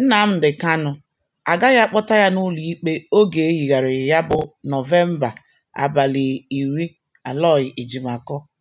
Nnamdị Kanụ agaghị akpọta ya n'ụlọ ikpe oge e ya bụ Nọvemba abalị iri Aloy Ejimakor